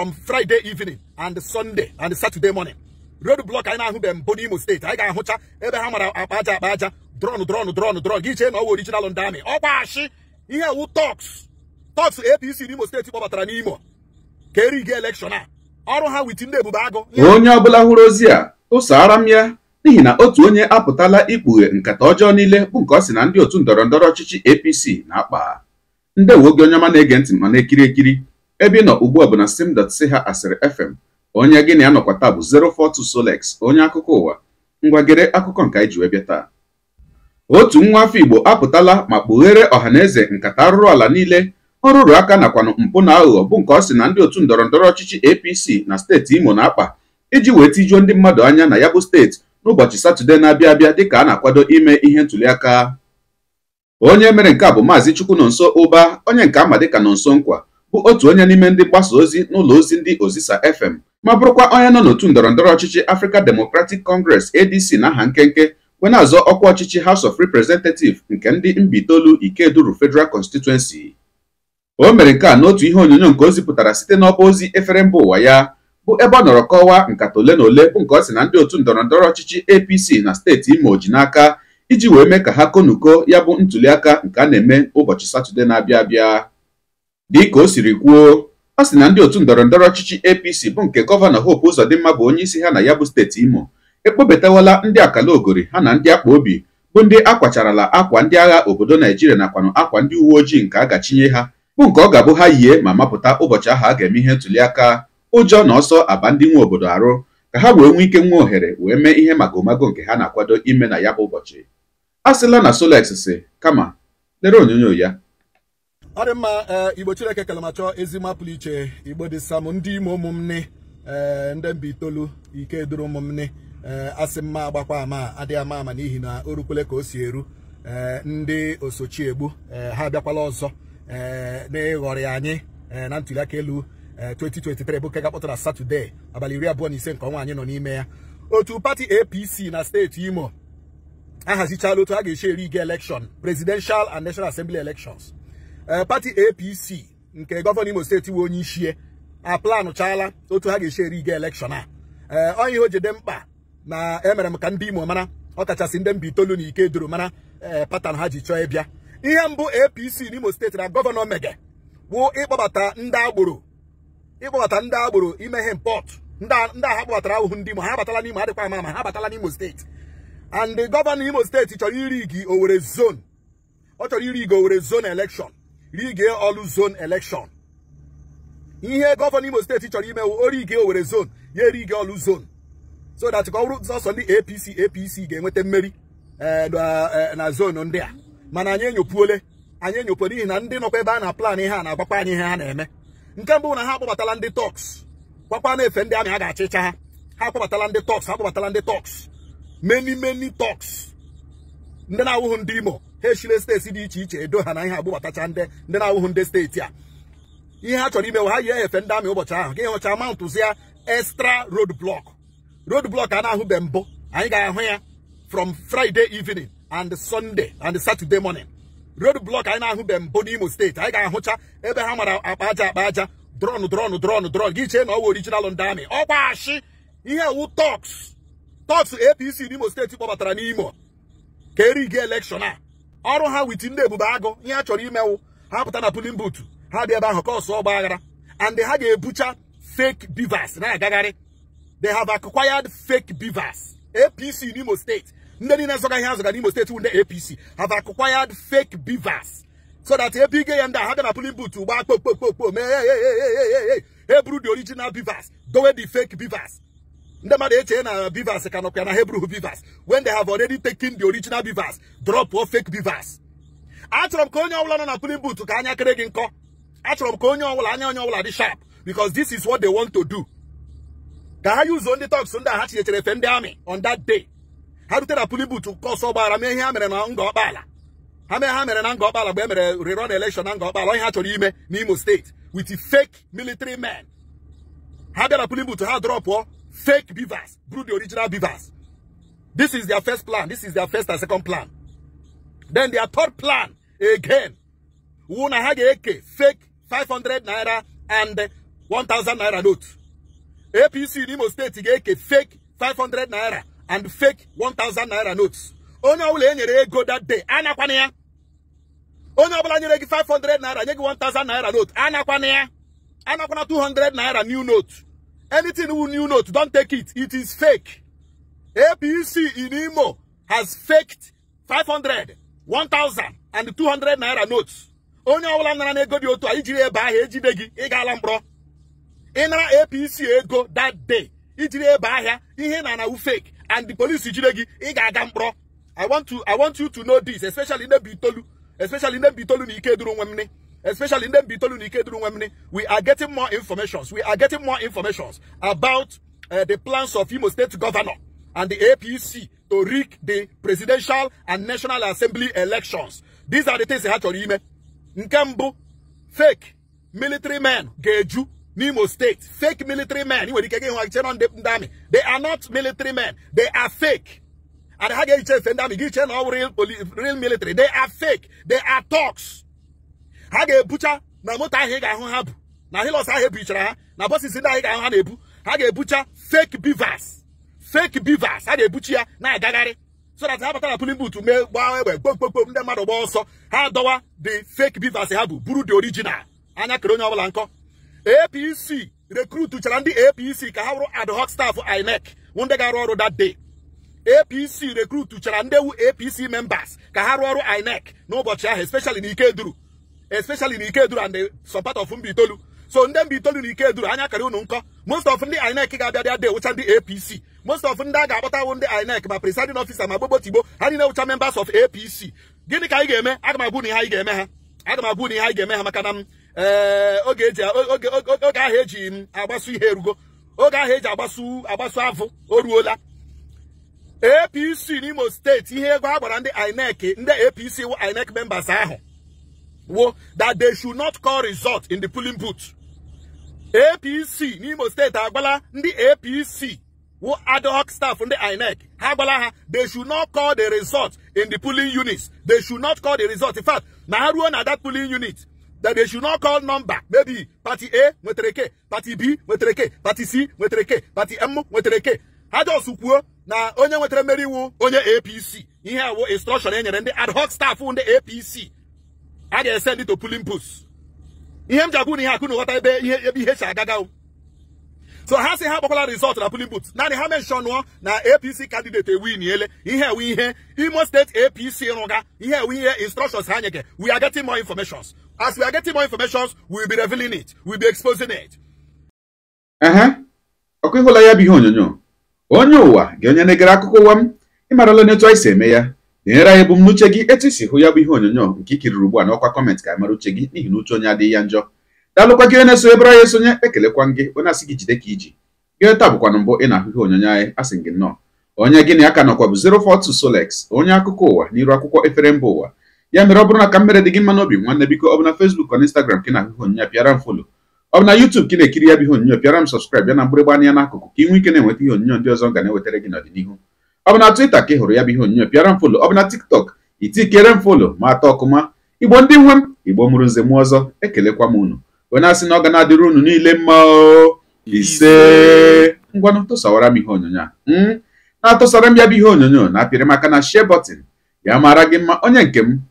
from Friday evening and Sunday and Saturday morning road block anyị na-ahụbeghị mbụ n'Imo steeti anyị ga-ahụcha ebe ha mara akpa aja akpa aja drọn drọn drọn drọn gị chee na ọ wụ original ndị amị ọkwa oh, ashị ihe wu tọks tọks APC n'Imo steeti kpọbatara n'Imo ka eri gị elekshọn a ọrụ ha wit ndị ebube agụ onye ọbụla hụrụ ozi a tụsara m ya n'ihi na otu onye apụtala ikpughe nkata ọjọọ niile bụ nke ọ sị na ndị otu ndọrọ ndọrọ ọchịchị APC na-akpa ndewo gị onye ọma na-ege ntị ma na-ekiri ekiri ebe ị nọ ugbu a bụ na stem.ch asịrị fm onye gị na ya nọkwa taa bụ 042 Solex onye akụkọ ụwa ngwagere akụkọ nke anyị ji wee taa otu nwa afọ Igbo apụtala ma kpughere ọha na eze nkata arụrụ ala niile ọ rụrụ aka nakwanụ mpụ na aghụghọ bụ nke ọ sị na ndị otu ndọrọ ndọrọ ọchịchị APC na steeti Imo na-akpa iji wee tijuo ndị mmadụ anya na ya bụ steeti n'ụbọchị Satọde na-abịa abịa dịka a na-akwado ime ihe ntụliaka onye mere nke a bụ Maazị nso Ụba onye nke ama dịka nso Nkwa bụ otu onye n'ime ndị mgbasa ozi n'ụlọ ozi ndị Ozisa FM ma bụrụkwa onye nọ n'otu ndọrọ ndọrọ ọchịchị Africa Democratic Congress ADC n'aha nkenke wee na-azọ ọkwa ọchịchị House of Representatives nke ndị Mbaitolu Ikeduru Federal Constituency o mere nke a n'otu ihe onyonyo nke o zipụtara site n'ọba ozi efere mba ụwa ya bụ ebe ọ nọrọ kọwaa nkata ole na ole bụ nke ọ sị na ndị otu ndọrọ ndọrọ ọchịchị APC na steeti Imo ji n'aka iji wee mee ka ha konuko ya bụ ntuliaka nke a na-eme ụbọchị Satọde na-abịa abịa ka o siri kwuo ọ sị na ndị otu ndọrọ ndọrọ ọchịchị apc bụ nke gọvanọ hope ụzọdịmma bụ onye isi ha na ya bụ steeti imo ekpobetawala ndị akala ogori ha na ndị akpa obi bụ ndị akwacharala akwa ndị agha obodo naijiria nakwanụ akwa ndị uwe ojii nke a gachinye ha bụ nke ọ ga-abụ ha yie ma mapụta ụbọchị aha a ga-eme ihe ntuli aka ụjọ na ọsọ aba ndị nwe obodo arụ ka ha wee nwee ike nwa ohere wee mee ihe magomago nke ha na-akwado ime na ya bụ ụbọchị a sịla na solex si kama lere onyonyo ya ọ mma eh, igbo chineke kelamacho ezigbo apụlụ iche igbo dị sam ndị ime ụmụnne ee eh, ndị mba itoolu ike duru ụmụnne ee eh, asị mma agbakwa ama adịghị ama ama n'ihi na o ka o si eru ee ndị osochiegbu ee ha abịakwala ọzọ ee na-eghọrị anyị na aka elu 2023 bụ nke gapụtara satọde abalị iri abụọ na ise nke ọnwa anyị nọ n'ime ya otu pati apc na steeti imo ahazichala otu a ga-esi eri ige elekshọn presidential and national assembly elekshons Eh, pati apc nke gọvanọ imo steeti nwe onye ichie aplanụchaala otu ha ga-esi eri ga elekshọn a ee eh, onye ihe o jide mkpa na emere m ka ndị imo mara ọkachasị ndị mba itoolu na ike duru mara eh, patan ha ji chọọ ịbịa ihe mbụ apc Imo steeti na gọvanọ mege bụ ịkpọbata ndị agboro ịkpọbata ndị agboro ime ihe mpọt ndị agha kpọbatara ahụhụ ndị imo ha abatala n'imo adịkwa ama ama ha abatala n'imo steeti and gọvanọ imo steeti chọrọ iri owere zone ọ chọrọ iri gị owere zon elekshọn rige ọlụ zon elekshọn ihe gọvanọ Imo steeti chọrọ imewu orige Owerri zone ya erige ọlụ zon so that ka ọ bụrụ ndị APC APC e ga-enweta mmeri eh, na eh, zonu ndị a mana anyị enyopuole anyị enyopuo n'ihi na ndị nọkwa ebe a na plan ihe a na-agbakwa anyị ihe ha na-eme nke mbụ na ha akpọbatala ndị tọks kwakwa na-efe ndị amị a ga-achịcha ha ha akpọbatala ndị tọks ha akpọbatala ndị tọks many many tọks ndị na-awụhụ ndị imo ha echile steeti dị iche iche edo ha na ihe agbụbatacha ndị ndị na-awụhụ ndị steeti a ihe ha chọrọ imewe ha yi ehefe ndị amị ụbọchị ahụ gị hụcha ma ntụzia extra road block road block a na-ahụbe mbụ anyị ga-ahụ ya from friday evening and sunday and saturday morning road block anyị na-ahụbe mbụ n'imo steeti anyị ga-ahụcha ebe ha mara akpa aja akpa aja drọn drọn drọn drọn gị chee na ọ wụ original ndị amị ọkwa ihe wu tọks tọks apc n'imo steeti kpọbatara n'imo ka erighi elekshọn a ọrụ ha wit ndị ebube agụ ihe a chọrọ imewu ha pụta na pulin butu ha dị ebe ahụ ka ọsọ ọgba aghara and ha ga-ebucha fake beavers na-agagharị they have acquired fake beavers apc n'imo steeti ndị niile zọga ihe azọga n'imo steeti wụ ndị apc have acquired fake beavers so that ebe ige ya ndị a ha ga na pulin butu gbaa kpokpokpokpo mee eburu the original beavers dowe the fake beavers ndị mmadụ eche na Bivas ka nọkwa na Hebrew Bivas when they have already taken the original Bivas drop or fake Bivas achọrọ m ka onye ọbụla nọ na pulling but ka anya kere gị nkọ achọrọ m ka onye ọbụla anya onye ọbụla dị sharp because this is what they want to do ka ha yuzuo ndị tọks ndị a ha chinyechere efe ndị amị on that day ha rute na pulling booth nke ọsọ mee ihe ha mere na nga ọkpala ha mee ha mere na nga ọkpala mgbe e mere rerun election na nga ọkpala onye ha chọrọ ime n'Imo steeti with fake military men ha bịara pulling but ha drọpụọ fake beavers, brew the original beavers. This is their first plan. This is their first and second plan. Then their third plan, again, Wuna had AK, fake 500 naira and 1000 naira notes. APC in State, fake 500 naira and fake 1000 naira notes. Only ọbụla enyere go that day, anakwana ya. Onye ọbụla nyere gị 500 naira, nye 1000 naira note, anakwana ya. Anakwana 200 naira new notes. Anything with new note, don't take it. It is fake. APC in Imo has faked 500, 1,000 and 200 naira notes. Only ọbụla nara na ego dị otu a ijiri ebe ahụ ejide gị ị gaala mkpọrọ ịnara APC ego that day ijiri ebe ahịa ihe na fake and the police jide gị ị ga-aga I want to I want you to know this especially in the Nnebuitolu especially in Nnebuitolu na Ikeduru Nwemne especially in the we are getting more informations. We are getting more informations about uh, the plans of Imo State Governor and the APC to rig the presidential and national assembly elections. These are the things they had to remember. Nkembu, fake military men, Geju, Nimo State, fake military men. They are not military men. They are fake. And how get real, real military? They are fake. They are talks. ha ga-ebucha na moto ahụ ị ga-ahụ ha bụ na hilos ahụ ebichara ha na bọsis ndị anyị ga-ahụ ha na-ebu ha ga-ebucha fake bivas fake bivers ha ga-ebuchi ya na-agagharị so that ha batara pulin but mee gbaa egbe gbokpokpo ndị mmadụ gbaa ọsọ ha dọwa the fake bivers ha bụ buru the original anya kere onye ọbụla nkọ apc recruit chara ndị apc ka ha wụrụ ad hoc staff inec ndị ga-arụ ọrụ that day apc rekrut chara ndị ewu apc members ka ha rụọ ọrụ inec n'ụbọchị ahụ especially ike duru especially na Ikeduru and the some part of Mbaitolu so ndị Itolu na Ikeduru anya kara unu nkọ most of ndị INEC ga-abịa bịa dee ndị APC most of ndị a ga-akpọtawo ndị INEC ma presiding ofisa ma gbogbo tigbo ha niile wụcha members of APC gịnị ka anyị ga-eme aga m na ihe anyị ga-eme ha aga m na ihe anyị ga-eme ha maka na m eh, oge ahụ eji m mm, agbasu ihe erugo oge ahụ eji agbasu agbasu avụ o ruola APC n'Imo steeti ihe ego a gbara ndị INEC ndị APC wụ INEC members ahụ that they should not call result in the polling booth APC n'Imo steeti agbala the APC Who ad hoc staff from the INEC ha gbala ha they should not call the result in the polling units they should not call the result in fact na ha ruo na that polling unit that they should not call number maybe party A nwetara k party B nwetara k party C nwetara k party M nwetara k ha jos kwuo na onye nwetara mmeri iwu Only APC ihe a wo instruction e nyere ndị ad hoc staff the APC a ga-esend to pulin pus ihe m ji agwụ na ihe akụ na ebe ihe ebe ihe si agaga so ha si ha gbakwala rizọt na pulin put naanị ha menshọnụọ na apc kandidate ewiniele ihe ewe ihe imo steeti apc rụga ihe ewe ihe instructions ha nyeke we are getting more informations as we are getting more informations we will be revealing it we will be exposing it. ọkụ ịhụla ya bụ ihe onyonyo onye ụwa ga-enye negara akụkọ ụwa m ịmarala n'etu anyị si eme ya nyere anyị ebumnuche gị etu isi hụ ya bụ ihe onyonyo nke ikiriri ugbu a n'ọkwa kọmentị ka mara uche gị n'ihi na uche onye adịghị ya njọ daalụkwa gị na-eso ebere anyị esonye ekelekwa gị onye asị gị jide ka iji gị ta bụkwanụ mbụ ị na-ahụ ihe onyonyo anyị asị gị nnọọ onye gị na ya ka nọkwa bụ 042 Solex onye akụkọ ụwa n'iru akwụkwọ efere mba ụwa ya mere ọ bụrụ na ka mmere dị gị mma n'obi nwanne biko ọ bụ na Facebook na Instagram ka ị na onyonyo pịara m folo ọ bụ na YouTube ka na-ekiri ya bụ ihe onyonyo pịara m sọskraịb ya na mgbịrịgba anya n'akụkụ ka ị nwee ike na-enweta ihe onyonyo ndị ọzọ ga na-ewetara gị n'ọdịnihu ọ bụ na Twitter ka ị hụrụ ya bụ ihe onyonyo pịara m folo ọ bụ na TikTok itikere m folo ma atọ ọkụma igbo ndị nwe m igbo mụrụ nze m ọzọ ekelekwa m unu onye na-asị na ọ ga na-adịrị unu niile mma ise ngwa tụsawara m ihe onyonyo a hmm? na-atụsara m ya bụ ihe onyonyo na-apịrị m aka na share button ya mara gị mma onye nke m